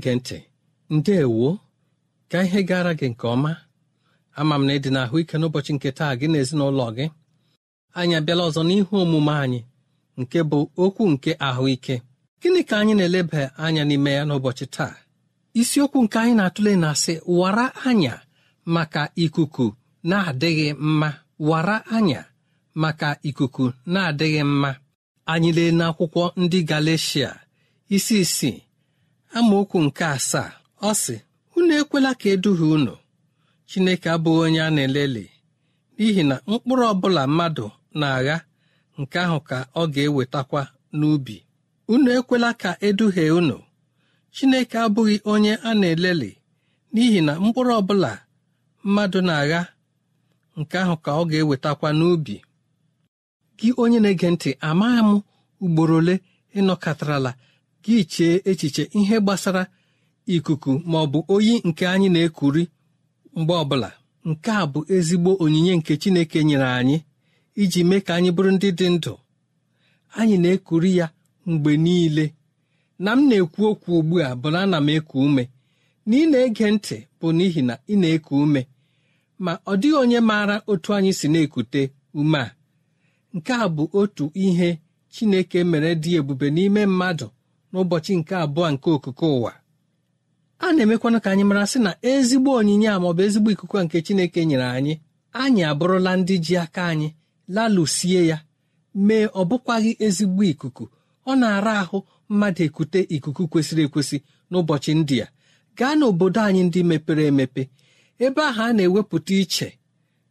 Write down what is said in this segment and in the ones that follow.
na-ege ntị ndeewo ka ihe gara gị nke ọma ama m na ịdị na ahụike n'ụbọchị nke taa gị na ezinụlọ gị anyị abịala ọzọ n'ihu omume anyị nke bụ okwu nke ahụike gịnị ka anyị na-eleba anya n'ime ya n'ụbọchị taa isiokwu nke anyị na-atụle na-asị wara anya maka ikuku na-adịghị mma wara anya maka ikuku na-adịghị mma anyị lee n'akwụkwọ ndị Galeshia isi isii amaokwu nke asaa ọ sị unu ekwela ka eduhie unu chineke abụghị onye a na elele n'ihi na mkpụrụ ọbụla mmadụ na-agha nke ahụ ka ọ ga-ewetakwa n'ubi unu ekwela ka eduhie unu chineke abụghị onye a na elele n'ihi na mkpụrụ ọbụla mmadụ na-agha nke ahụ ka ọ ga-ewetakwa n'ubi gị onye na-ege ntị amaghị m ugboro ole ịnọkọtarala gị chee echiche ihe gbasara ikuku ma ọ bụ oyi nke anyị na-ekuri mgbe ọbụla nke a bụ ezigbo onyinye nke Chineke nyere anyị iji mee ka anyị bụrụ ndị dị ndụ anyị na-ekuri ya mgbe niile na m na-ekwu okwu ugbu a bụ na ana m eku ume na ị na-ege ntị bụ n'ihi na ị na-eku ume ma ọ dịghị onye maara otu anyị si na-ekute ume a nke a bụ otu ihe Chineke mere dị ebube n'ime mmadụ n'ụbọchị nke abụọ nke okuko ụwa a na-emekwana ka anyị mara sị na ezigbo onyinye a maọbụ ezigbo ikuku nke Chineke nyere anyị anyị abụrụla ndị ji aka anyị lalụsie ya mee ọ bụkwaghị ezigbo ikuku ọ na-ara ahụ mmadụ ekute ikuku kwesịrị ekwesị n'ụbọchị ndị a gaa n'obodo anyị ndị mepere emepe ebe ahụ a na-ewepụta iche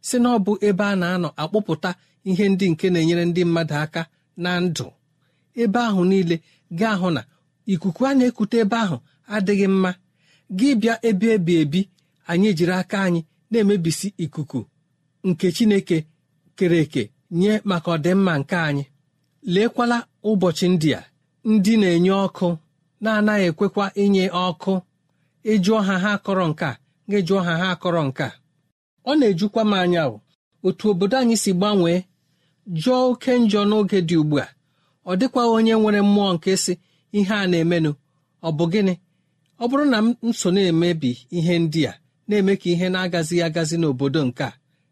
si na ọ bụ ebe a na-anọ akpụpụta ihe ndị nke na-enyere ndị mmadụ aka na ndụ ebe ahụ niile gị ahụ na ikuku a na-ekute ebe ahụ adịghị mma gị bịa ebe ebi ebi anyị jiri aka anyị na-emebisi ikuku nke chineke kere eke nye maka ọdịmma nke anyị leekwala ụbọchị ndị a ndị na-enye ọkụ na-anaghị ekwekwa inye ọkụ ịjụọ ha ha akọrọ nke a gị jụọ ha ha akọrọ nke a ọ na-ejukwa m anya otu obodo anyị si gbanwee jụọ oke njọ n'oge dị ugbu a ọ dịkwaghị onye nwere mmụọ nke si ihe a na-emenụ ọ bụ gịnị ọ bụrụ na m so na-emebi ihe ndị a na-eme ka ihe na-agazighị agazi n'obodo nke a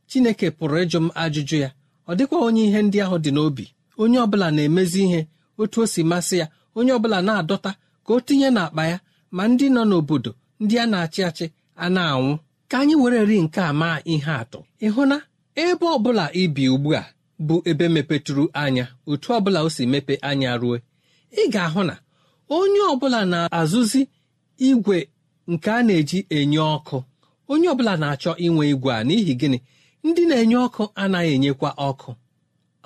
chineke pụrụ ịjụ m ajụjụ ya ọ dịkwa onye ihe ndị ahụ dị n'obi onye ọbụla na-emezi ihe otu o si masị ya onye ọbụla na-adọta ka o tinye n'akpa ya ma ndị nọ n'obodo ndị a na-achị achị a na-anwụ ka anyị were ri nke a maa ihe atụ ịhụ na ebe ọ bụla ibi ugbu a bụ ebe mepetụrụ anya otu ọbụla o si mepe anya ruo ị ga-ahụ na onye ọbụla na-azụzi igwe nke a na-eji enye ọkụ onye ọbụla na-achọ inwe igwe a n'ihi gịnị ndị na-enye ọkụ anaghị enyekwa ọkụ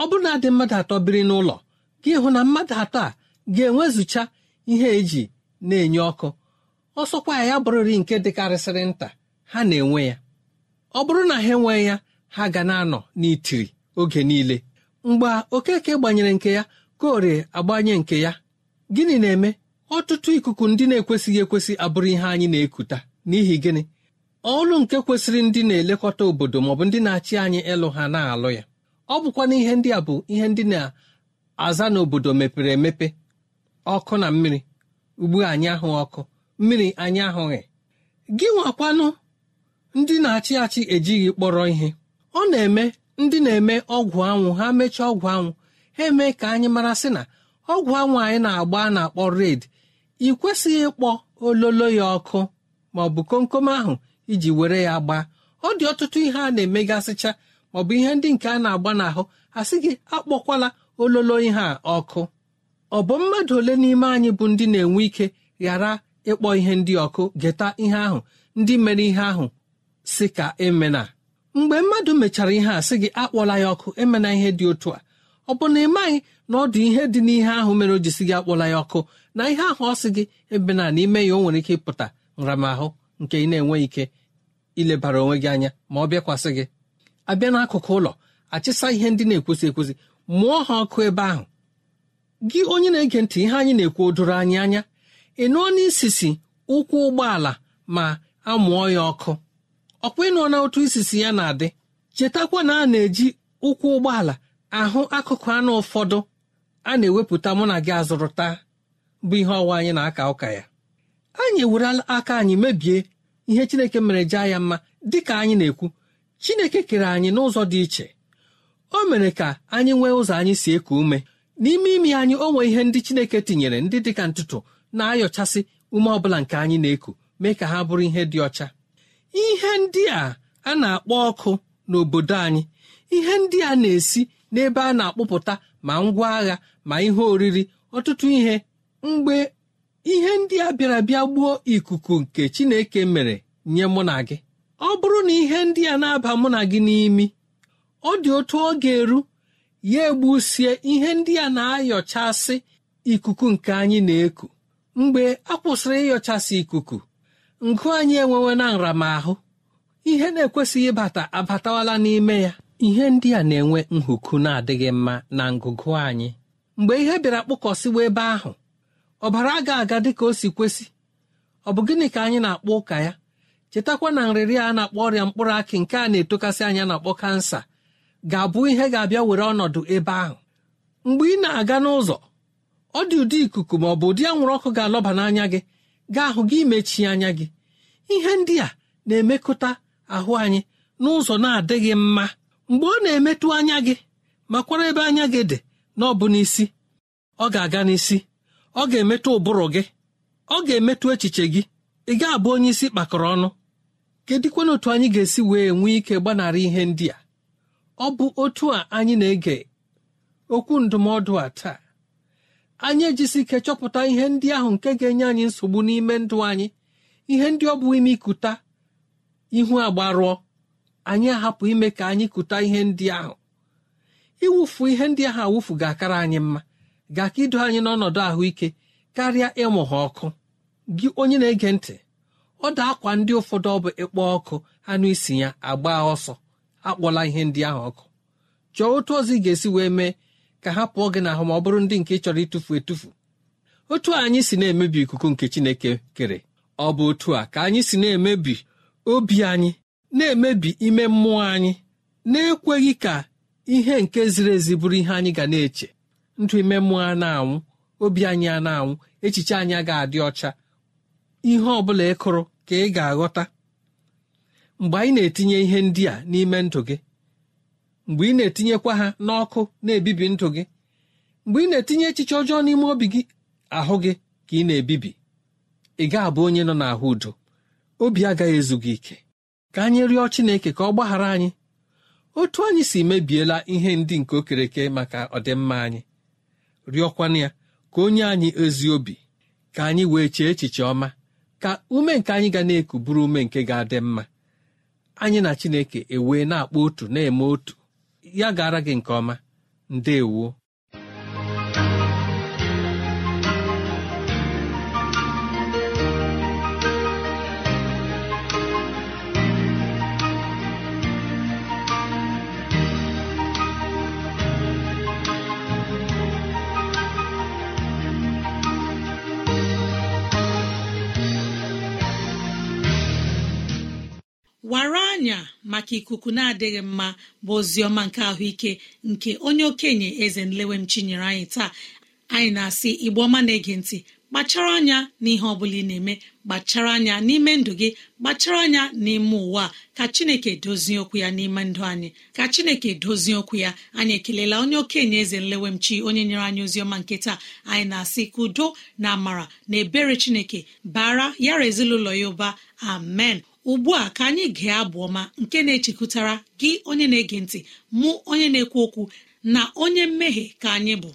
ọ bụrụ na dị mmadụ atọ biri n'ụlọ gị hụ na mmadụ atọ a ga-enwezụcha ihe eji na-enye ọkụ ọsọkwa ya bụrụri nke dịkarịsịrị nta ha na-enwe ya ọ bụrụ na ha enwe ya ha ga na-anọ n'itiri oge niile mgbe okeke gbanyere nke ya kore agbanye nke ya gịnị na-eme ọtụtụ ikuku ndị na-ekwesịghị ekwesị abụrụ ihe anyị na-ekuta n'ihi gịnị ọlụ nke kwesịrị ndị na-elekọta obodo maọbụ ndị na-achị anyị ịlụ ha na-alụ ya ọ bụkwa n'ihe ihe ndị a bụ ihe ndị na-aza n'obodo mepere emepe ọkụ na mmiri ugbu anyị ahụ ọkụ mmiri anyị ahụghị gị nwakwanụ ndị na-achị achị ejighị kpọrọ ihe ọ na-eme ndị na-eme ọgwụ anwụ ha mechaa ọgwụ anwụ ha emee ka anyị mara sị na ọgwụ anwụ anyị na-agba a na-akpọ red ị kwesịghị ịkpọ ololo ya ọkụ ma ọ bụ komkom ahụ iji were ya gbaa ọ dị ọtụtụ ihe a na-emegasịcha maọbụ ihe ndị nke a na-agba n'ahụ asị gị akpọkwala ololo ihe a ọkụ ọ bụ mmadụ ole n'ime anyị bụ ndị na-enwe ike ghara ịkpọ ihe ndị ọkụ geta ihe ahụ ndị mere ihe ahụ si ka emena mgbe mmadụ mechara ihe a sị gị akpọla ya ọkụ emena ihe dị otu a ọ bụ na ị maghị na ọ dị ihe dị n'ihe ahụ mere o ji si gị akpọla ya ọkụ na ihe ahụ ọ sị gị ebe na n'ime ya o nwere ike ịpụta nramahụ nke ị na-enweghị ike ilebara onwe gị anya ma ọ bịakwasị gị abịa n'akụkụ ụlọ achịsa ihe ndị na-ekwesị ekwesị mụọ ha ọkụ ebe ahụ gị onye na-ege ntị ihe anyị na-ekwu odoro anyị anya ị nụọ n'isisi ụkwụ ụgbọala ma a mụọ ya ọkụ ọkwa ịnọ na otu isisi ya na-adị chetakwa na a na-eji ụkwụ ụgbọala ahụ akụkụ anụ ụfọdụ a na-ewepụta mụ na gị azụrụta bụ ihe ọwa anyị na-aka ụka ya anyị ewerela aka anyị mebie ihe chineke mere jee ya mma dị ka anyị na-ekwu chineke kere anyị n'ụzọ dị iche o mere ka anyị nwee ụzọ anyị si eku ume n'ime imi anyị o nwee ihe ndị chineke tinyere ndị dị ka ntụtụ na-ayọchasị ume ọbụla nke anyị na-eku mee ka ha bụrụ ihe dị ọcha ihe ndị a a na-akpọ ọkụ n'obodo anyị ihe ndị a na-esi n'ebe a na-akpụpụta ma ngwa agha ma ihe oriri ọtụtụ ihe mgbe ihe ndị a bịara bịa gbuo ikuku nke chineke mere nye mụ na gị ọ bụrụ na ihe ndị a na-aba mụ na gị n'imi ọ dị otu ọ ga-eru ya egbusie ihe ndị a na-ayọchasị ikuku nke anyị na-eku mgbe a kwụsịrị ịyọchasị ikuku ngụ anyị enwewe na nramahụ ihe na-ekwesịghị ịbata abatawala n'ime ya ihe ndị a na-enwe nhuku na-adịghị mma na ngụgụ anyị mgbe ihe bịara kpụkọsịwa ebe ahụ ọbara ga aga dị ka o si kwesị ọ bụ gịnị ka anyị na-akpọ ụka ya chetakwa na nrịrị a na-akpọ ọrịa mkpụrụ akị nke a na-etokasị anya na-akpọ kansa ga-abụ ihe ga-abịa were ọnọdụ ebe ahụ mgbe ị na-aga n'ụzọ ọ dị ụdị ikuku ma ọ bụ ụdị anwụrụ ọkụ ga-alọba n'anya gị ga-ahụ gị mechie anya gị ihe ndị a na-emekọta ahụ anyị n'ụzọ na-adịghị mma mgbe ọ na-emetụ anya gị makwara ebe anya gị dị na ọ bụ n'isi ọ ga-aga n'isi ọ ga-emetụ ụbụrụ gị ọ ga-emetụ echiche gị ị ga-abụ onye isi kpakọrọ ọnụ kedịkwana otu anyị ga-esi wee nwee ike gbanarị ihe ndị a ọ bụ otu a anyị na-ege okwu ndụmọdụ a taa anyị ejisi ike chọpụta ihe ndị ahụ nke ga-enye anyị nsogbu n'ime ndụ anyị ihe ndị ọ bụ ime ikuta ihu agbarụọ anyị ahapụ ime ka anyị kuta ihe ndị ahụ iwufu ihe ndị ahụ awufu ga-akara anyị mma ga-aka ido anyị n'ọnọdụ ahụike karịa ịmụ ha ọkụ gị onye na-ege ntị ọ da akwa ndị ụfọdụ ọ bụ ịkpọ ọkụ anụ isi ya agba ọsọ akpọla ihe ndị ahụ ọkụ chọọ otu ọzọ ị ga-esi wee mee ka ha pụọ gị n'ahụ ma ọ bụrụ ndị nke chọrọ ịtụfu etufu otu anyị si na-emebi ikuku nke Chineke kere ọ bụ otu a ka anyị si na-emebi obi anyị na-emebi ime mmụọ anyị na-ekweghị ka ihe nke ziri ezi bụrụ ihe anyị ga na-eche ndụ ime mmụọ a na-anwụ obi anyị a na-anwụ echiche anyị ga adị ọcha ihe ọ bụla ị kụrụ ka ị ga-aghọta mgbe anyị na-etinye ihe ndị a n'ime ndụ gị mgbe ị na-etinyekwa ha n'ọkụ na-ebibi ndụ gị mgbe ị na-etinye echiche ọjọọ n'ime obi gị ahụ gị ka ị na-ebibi ị ga-abụ onye nọ n'ahụ udo obi agaghị ezu gị ike ka anyị rịọ Chineke ka ọ gbaghara anyị otu anyị si mebiela ihe ndị nke okereke maka ọdịmma anyị rịọkwana ya ka onye anyị ezi obi ka anyị wee chee echiche ọma ka ume nke anyị ga na-eku bụrụ ume nke ga-adị mma anyị na Chineke ewee na-akpọ otu na-eme otu ya e gara gị nke ọma ndewo maka ikuku na-adịghị mma bụ oziọma nke ahụike nke onye okenye eze nlewem chinyere anyị taa anyị na-asị igbe ọma na-ege ntị kpachara anya n'ihe ọ bụla ị na-eme kpachara anya n'ime ndụ gị kpachara anya n'ime ụwa ka chineke dozie okwu ya n'ime ndụ anyị ka chineke dozie okwu ya anyị ekelela onye okenye eze nlewemchi onye nyere anyị oziọma nke taa anyị na-asị ka udo na amara na ebere chineke bara yara ezinụlọ ya ụba amen ugbu a ka anyị gee abụ ọma nke na echekwutara gị onye na-ege ntị mụ onye na-ekwu okwu na onye mmehie ka anyị bụ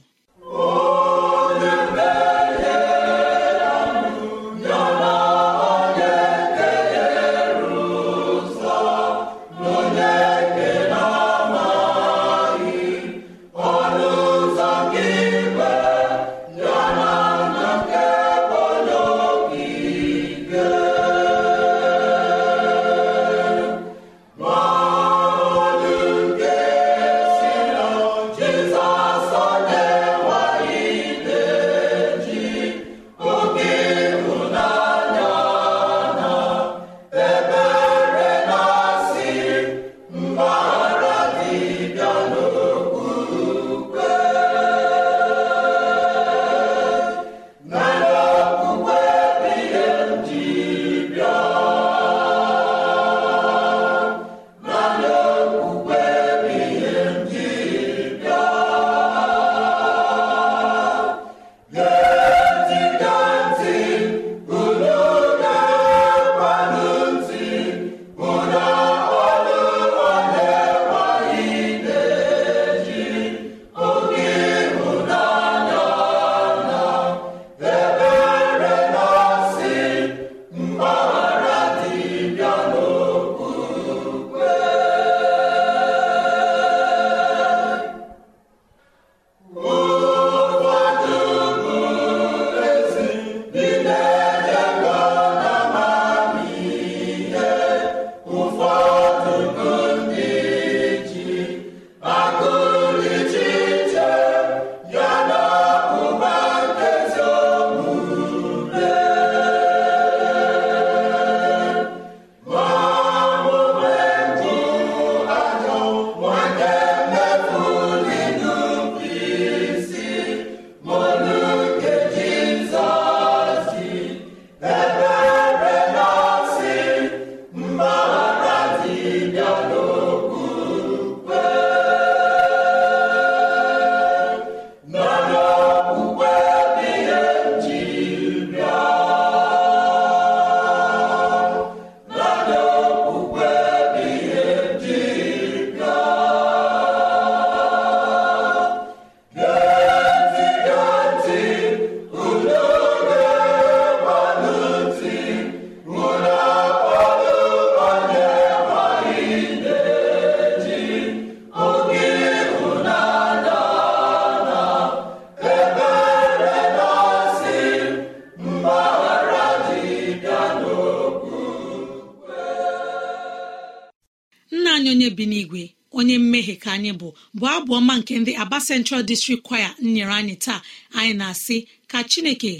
Aba Central District Choir nyere anyị taa anyị na-asị ka Chineke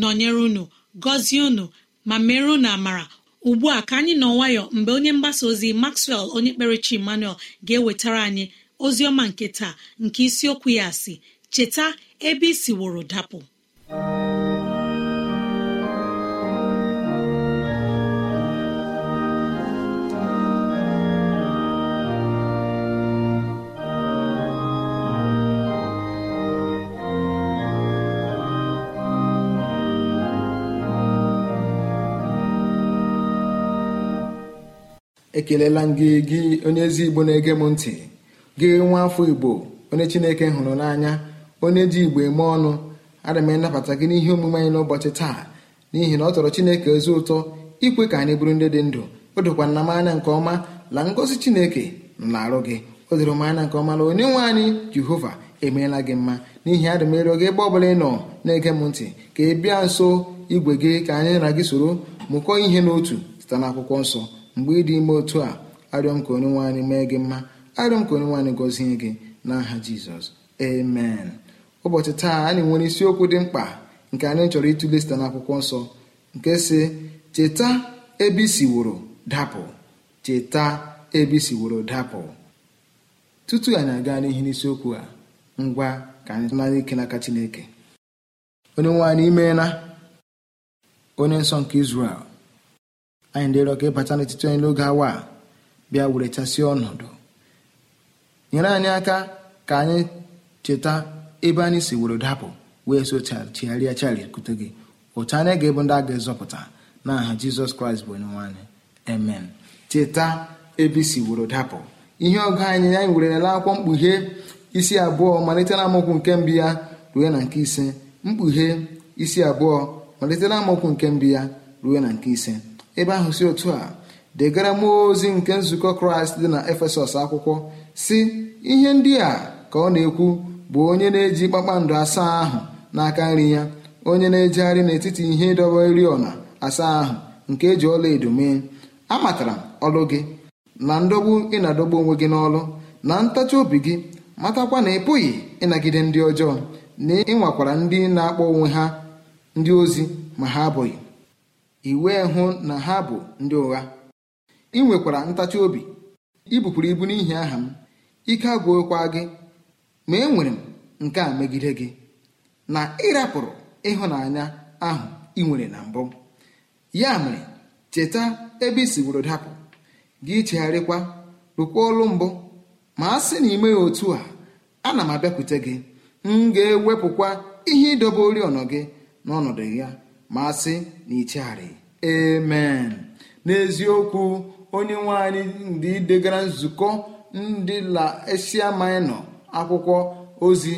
nọnyere unu gọzie unu ma mere unu amara ugbu a ka anyị nọ nwayọ mgbe onye mgbasa ozi Maxwell onye kperechi Emmanuel ga-ewetara anyị ozi ọma nke taa nke isiokwu ya si cheta ebe isi woro dapụ ekelela gị gị onye ezi igbo na-ege m ntị gị nwa afọ igbo onye chineke hụrụ n'anya onye ji igbo eme ọnụ ana m gị n'ihe omume anyị n'ụbọchị taa n'ihi na ọ tọrọ chineke ezi ụtọ ikwe ka anyị bụrụ ndị dị ndụ o dokwa na m anya nke ọma la ngozi chineke nọ na-arụ gị o doro m anya nke ọma na onye nwe anyị jehova emeela gị mma n'ihi adị m ịrịọ gị ebe ọ bụla ị nọ na-ege m ntị ka ị bịa nso igwe gị ka anyị na gị soro mụkọọ ihe n'otu site n'akwụkwọ nsọ mgbe ị dị ime otu a arịọ m ka onye nwe anyị mee gị mma arịọ m ka onye nwe anyị gọzie gị n'aha jizọs amen ụbọchị taa anyị nwere isiokwu dị mkpa nke anyị chọrọ ịtụle site n'akwụkwọ nsọ nke si cheta ebe isiworo dapụ cheta ebe isiworo dapụ tutu anyị aga n'ihi n'isiokwu a ngwa ka anyị nara ike n'aka chineke onye nwe anyị imeela onye nsọ nke Izrel anyị ndị rịọ ka ịbata n'etiti anyị n'oge awa a bịa were chasịa ọnọdụ nyere anyị aka ka anyị cheta ebe anyị si were dapụ wee so chigharịa charikwute gị otu anyị ga-ebu ndị a ga-ezọpụta n'aha aha jizọs kraịst bụ onyenwe anyị amen cheta ebe isi were dapụ ihe ọgụ anyị anyị were nele akwụkwọ mkpughe isi abụọ malite na amaokwu nke mbi ya ruo na nke ise mkpughe isi abụọ malite na amaokwu nke mbụ ya ruo na nke ise ebe ahụ si otu a degara m ozi nke nzukọ kraịst dị na efesọs akwụkwọ si ihe ndị a ka ọ na-ekwu bụ onye na-eji kpakpando asaa ahụ n'aka nri ya onye na-ejegharị n'etiti ihe ịdọba oriọna asaa ahụ nke eji ọla edo mee amatara ọlụ gị na ndọgbu ị na-adọgbu onwe gị n'ọlụ na ntachi obi gị matakwa na ị pụghị ịnagide ndị ọjọọ na ịnwakwara ndị na-akpọ onwe ha ndị ozi ma ha abụghị i wee hụ na ha bụ ndị ụgha ị nwekwara ntachi obi ibupuru ibu n'ihi aha m ike agwụkwa gị ma enwere m nke a megide gị na ịrapụrụ ịhụnanya ahụ ị nwere na mbụ ya mere cheta ebe i siworo dapụ gị chegharịkwa rụkwa ọlụ mbụ ma a sị na ime otu a na m abịakwute gị m ga-ewepụkwa ihe ịdobe oriọna gị n'ọnọdụ ya masị na ichegharị emen n'eziokwu onye nwe anyị ndị degara nzukọ ndị la esia akwụkwọ ozi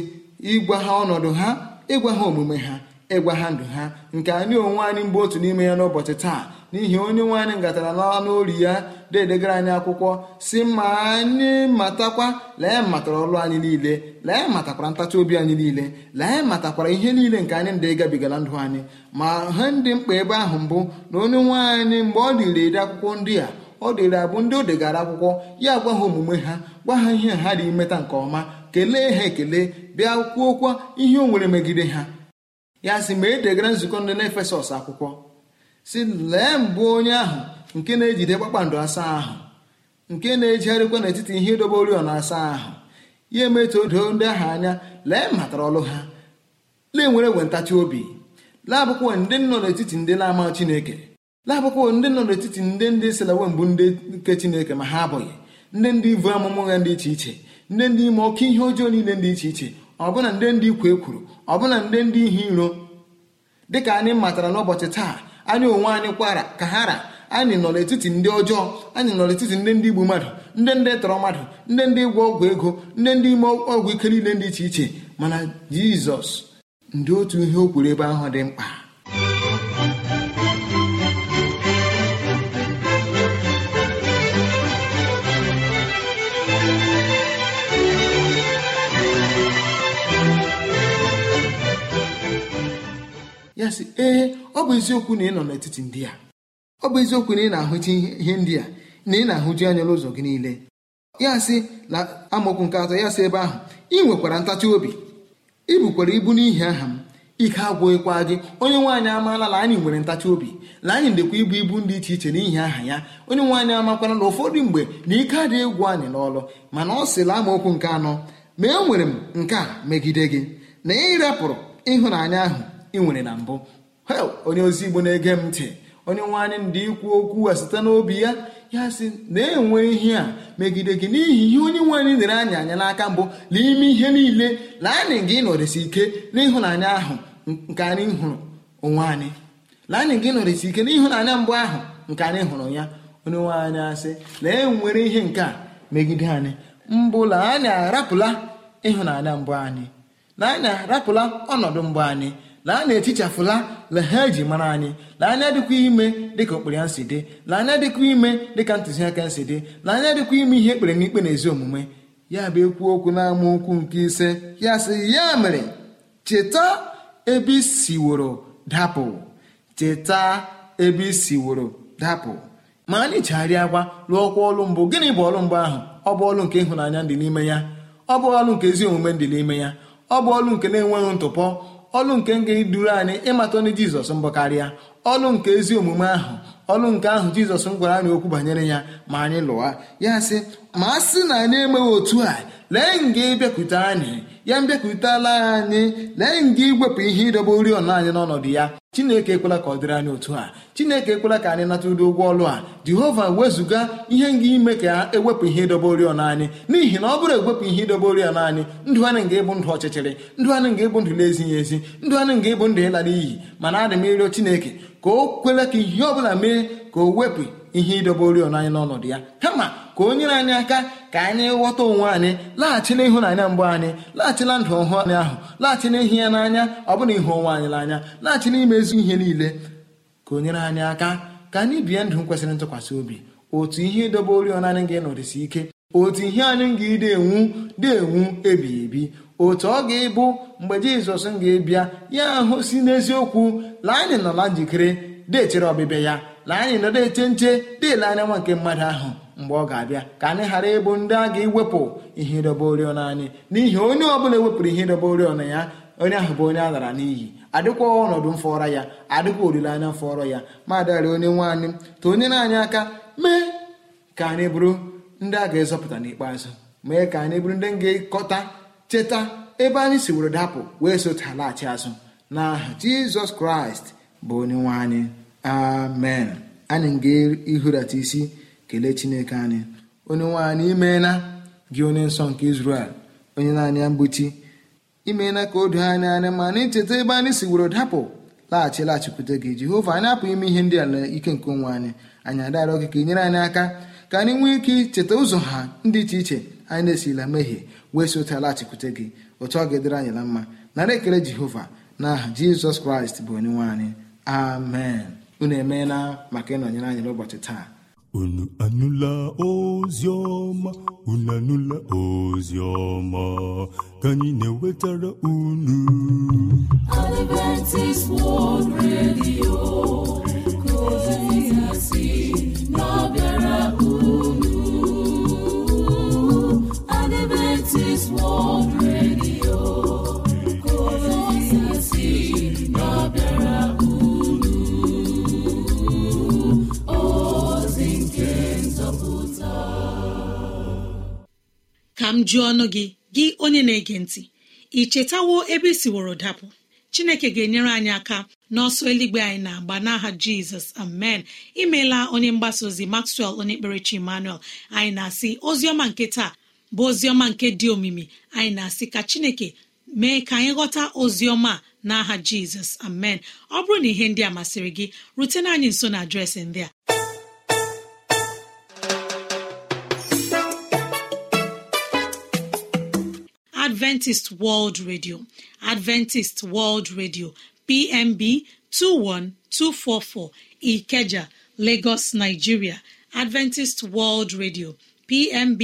ịgwa ha ọnọdụ ha ịgwa ha omume ha ịgwa ha ndụ ha nke anyị onwe anyị mgbe otu n'ime ya n'ụbọchị taa n'ihi onye nwe anyị ngatara n'ọnụ ori ya dedegara anyị akwụkwọ si ma anyị matakwa lee matara ọrụ anyị niile lee matakwara ntachi obi anyị niile lee matakwara ihe niile nke anyị ndị gabigara ndụ anyị ma ha ndị mkpa ebe ahụ mbụ na onye nwe anyị mgbe ọ dịrị ede akwụkwọ ndị a ọ dịrị abụ ndị o degara akwụkwọ ya gwa ha omume ha gwa ha ihe ha dị imeta nke ọma kelee ha ekele bịa kwuokwa ihe o nwere megide ha ya sị ma e degara nzukọ ndị na efesọs akwụkwọ si lee mbụ onye ahụ nke na-ejide kpakpando asaa ahụ nke na-ejigharịkwa n'etiti ihe idobe oriọna asaa ahụ ya emetụ doo ndị ahụ anya lee matara ọlụ ha lee nwere egwe ntachi obi laabụkwa ndị nọ n'etiti ndị na-ama chineke laabụkwa ndị nọ n'etiti ndị ndị selawe mbụ ndị nke chineke ma ha abụghị ndị ndị ivu amụmụ ha dị iche iche ndị ndị ime ọkụ ihe ọjọọ niile dị iche iche ọbụna ndị ndị ikwu kwuru ọbụna ndị ndị ihe iro dịka anyị matara n'ụbọchị taa anyị onwe anyị kwara ka ha ra anyị nọ n'etiti ndị ọjọọ anyị nọ n'etiti ndị ndị igbu mmadụ ndị ndị tọrọ mmadụ ndị ndị ịgwọ ọgwụ ego ndị ndị ime ọgwụ ike niile dị iche iche mana jizọs ndị otu ihe o kwuru ebe ahụ dị mkpa ya sị ee ọ bụ eziokwu na ị nọ n'etiti ndị a. ọ bụ eziokwu na ị na-ahụta ihe ndị a na ị na-ahụju anya n'ụzọ gị niile ya sị na amokwu nke atọ ya sị ebe ahụ ị nwekwara ntachi obi ị bukwara ibu n'ihi aha m ike agwụghịkwa gị onye nwaanyị amaala na anyị nwere ntachi obi na anyị ndekwa ibu ibu dị iche iche n'ihi aha ya onye nwaanyị amakwara na ụfọdụ mgbe na ike adịghị egwu anyị n'ọlụ mana ọ sịla amaokwu nke anọ ma enwere m nke a megide gị na ị ịhụnanya ahụ ị nwere na mbụ onye ozi igbo na-ege m ntị onye nwe anyị ndị ikwu okwu a site n'obi ya ya si na-enwe ihe a megide gị n'ihi ihe onye nwe anyị nere anyị anya n'aka mbụ n'ime ihe niile na anyị gị nọrịsị ike n'ịhụnanya ahụ nke anyị hụrụ onwe anyị na anyị gị nọrịsị ike n'ịhụnanya mbụ ahụ nke anyị hụrụ ya onye nwe anyị asị na enwere ihe nke a megide anyị mbụ na anyị arapụla ịhụnanya mbụ anyị na anyị arapụla ọnọdụ mbụ anyị laa na etichafụla lehe eji mara anyị laa anya dịkwa ime dịka okpere ya si dị laa anya dịkwa ime dịka ntụziaka nsi dị laa anya dịkwa ime ihe ekpere n'ikpe na ezi omume ya bụ ekwu okwu n'ama okwu nke ise ya sị ya mere cheta ebe isiworo dapụ cheta ebe isiworo dapụ ma anyị chegharịa agwa lụọkwa ọlụ mbụ gịnị bụ ọlụ mbụ ahụ ọ bụ ọlụ nke ịhụnanya dị n'ime ya ọ bụ ọlụ nke ezi omume dị n'ime ya ọ bụ ọlụ nke na-enweghị ntụpọ ọlụ nke nga duru anyị ịmata ọnụ jizọs mbụ karịa ọlụ nke ezi omume ahụ ọlụ nke ahụ jizọs m gwara anyị okwu banyere ya ma anyị lụwa ya sị ma a sị na anyị emeghị otu a lee nga ịbịakwute anyị ya mbịakwutela anyị lee nga iwepụ ihe ịdọba oriọna anyị n'ọnọdụ ya chineke ekwela ka ọ dịrị anyị otu a chineke ekwela ka anyị nata ụdị ụgwọ ọlụ a jehova wezụga ihe nga ime ka ewepụ ihe ịdobe oriọna anyị n'ihi na ọ bụrụ ewepụ ihe ịdobe oriọna anyị ndụ anyị nga ịbụ ndụ ọchịchịrị ndụ anyị nga ịbụ ndụ na-ezighị ezi ndụ anyị nga ịbụ ndụ ịla n'iyi mana adị m ịrịọ chineke ka o kwela ka ihe ọ bụla mee ka o wepụ ihe ịdobe oriọna anyị n'ọnọdụ ya kama ka o nyere anyị aka ka anyị ghọta onwe anyị laghachila ịhụnanya mbụ anyị laghachila ndụ ọhụụ anyị ahụ laghachila ihi ya n'anya ọ ịhụ onwe anyị n'anya laghachila ime ezu ihe niile ka o nyere anyị aka ka anyị bie ndụ kwesịrị ntụkwasị obi otu ihe ịdobe oriọna anyị ga-enọdụsi ike otu ihe anyị ga-edenwu enwu ebighị ebi otu ọ ga-ịbụ mgbe jizọs ga-ebịa ya ahụ si n'eziokwu laa anyị nọla njikere deechere ọbịbịa ya laa anyị nọdụ eche nche deele anya nwa nke mmadụ ahụ mgbe ọ ga-abịa ka anyị ghara ịbụ ndị a ga-ewepụ ihe ịdọba oriọna anyị n'ihi onye ọbụla ewepụrụ ihe ịdọba oriọna ya onye ahụ bụ onye a lara n'iyi adịkwa ọnọdụ mfọrọ ya adịkwa olileanya mfọrọ ya ma adịghara onye nwe anyị tụ onye na-anyị aka mee ka anyị bụrụ ndị a ga-ezọpụta n'ikpeazụ mee ka anyị bụrụ ndị ga-ekọta cheta ebe anyị si were dapụ wee sota laghachi azụ aha jizọs kraịst bụ onye nwe anyị amen anyị ga-ihurata isi kelee chineke anyị onye nwe anyị imeela gị onye nsọ nke izrel onye naanị ya mgbochi imeela ka o doo anya anya ma na icheta ebe anyị si were dapụ laghachi laghachikwute gị jehova anyị apụghị ime ihe ndị ala ike nke onwe anyị anyị adarọ gị ka nyere anyị aka ka anyị nwee ike icheta ụzọ ha ndị iche iche anyị na-esila mehie wee si ụta laghachikwute gị otu ọ ga-edere anyị na mma nara ekele jehova na aha jizọs kraịst bụ onye nwe anyị amen unu emeela maka ịnọnyere anyị n'ụbọchị taa unu anụla ozi ọma unu anụla ozi ka anyị na-ewetara unu ka m jụọ ọnụ gị gị onye na-ege ntị ị chetawo ebe isiworo dapụ chineke ga-enyere anyị aka n'ọsọ eluigwe anyị na-agba n'aha jizọs amen imeela onye mgbasa ozi maxwell onye kperechi emmanuel anyị na-asị ọma nke taa bụ oziọma nke dị omimi anyị na-asị ka chineke mee ka anyị ghọta oziọma n'aha jizọs amen ọ bụrụ na ihe ndị a masịrị gị rutena anyị nso na adreesị ndị a adventist world radio adventist world radio pmb 21244 ikeja lagos nigeria adventist world radio pmb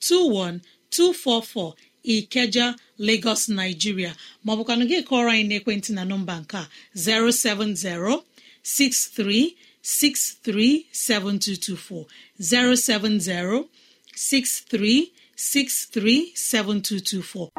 21244 ikeja lagos nigeria maọbụkwanụ gị kọrọ anyị n'ekwentị na nọmba nke 070 07063637224 07063 637224.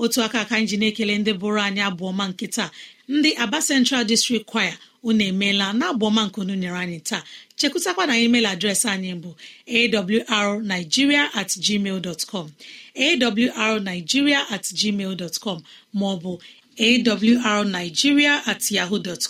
otu aka ka anyị ji na-ekele ndị bụrụ anyị abụọ ma nkịta, ndị aba central district choir unu emeela na abụọma nyere anyị taa chekwutakwa na email adreesị anyị bụ awrnigeria at gmail dot com awrnigeria at gmail dot com maọbụ awrnigeria at yahoo dot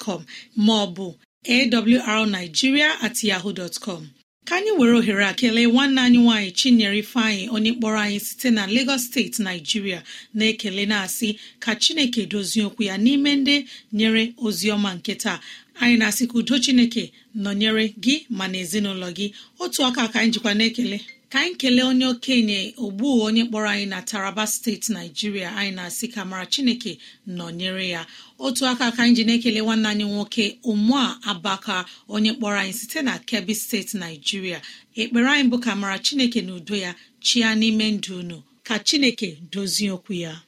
maọbụ awrnigeria at yahoo dot com ka anyị were ohere a kelee nwanne anyị nwaanyị chinyere ifeanyị onye kpọrọ anyị site na Lagos steeti naijiria na-ekele na-asị ka chineke dozie okwu ya n'ime ndị nyere ozi ọma nke taa anyị na-asị ka udo chineke nọnyere gị ma na ezinụlọ gị otu aka ka anyị jikwa na-ekele ka anyị kelee onye okenye ogbu onye kpọrọ anyị na taraba steeti naijiria anyị na-asị ka mara chineke nọnyere ya otu aka aka anyị ekele nwanne anyị nwoke ụmụa abaka onye kpọrọ anyị site na kebbi steeti naijiria ekpere anyị bụ ka mara chineke na udo ya chia n'ime ndụ unu ka chineke dozie okwu ya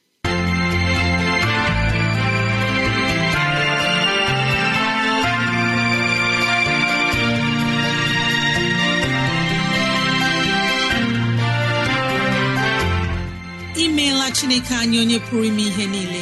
imeela chineke anyị onye pụrụ ime ihe niile